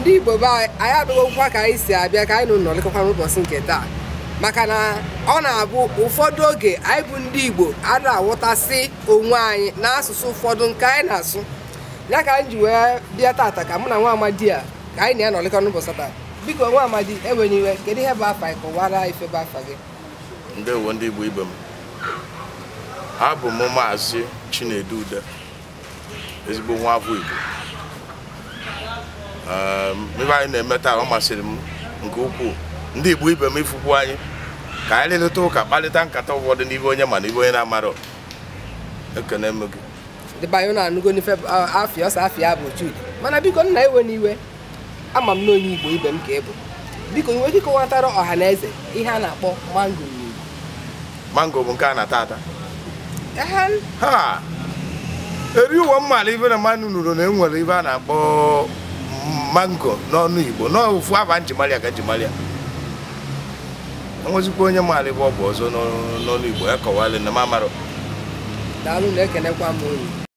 ndị igbo be anyị abịagokwa ka anyị si abịa ka anyị nọ nọrịkọkwa n'ụbọchị nke taa maka na ọ na-abụ ụfọdụ oge anyị bụ ndị igbo a na-awụtasị onwe anyị n'asụsụ ụfọdụ nke anyị na-asụ ya ka anyị ji wee bịa tata ka mụ na nwa amadi a ka anyị na ya nọrịkọ n'ụbọchị taa biko nwa amadi enweghị iwe kedu ihe bụ afa anyị kọwara bụ afa gị uwe ndị igbo ibe m abụ m maazị Chinedu Ude ezigbo nwa afọ igbo Um, ebe anyị na-eme taa ọ masịrị m nke ukwuu ndị Igbo ibe m ifukwu anyị ka anyị leleta ụka kparịta nkata ụfọdụ n'ibe onye ma na onye na-amara ekene m gị dịba anyị na-anụgo n'ife afịa ọsọ afịa bụ Chude mana biko nna iwe n'iwe ama m na onye Igbo ibe m ka ị bụ biko nwere ike kọwatara ọha na eze ihe a na-akpọ mango n'Igbo mango bụ nke a na-ata ata eri ụwa mmalụ ibe na mmanụ nụrụ na enwere ibe a na-akpọ mango n'ọnụ igbo n'ofu afa njimalia ka njimalia enwezikwa onye maara bụ ọ bụ ọzọ n'ọnụ igbo ya kọwalị na mamarụ daalụ na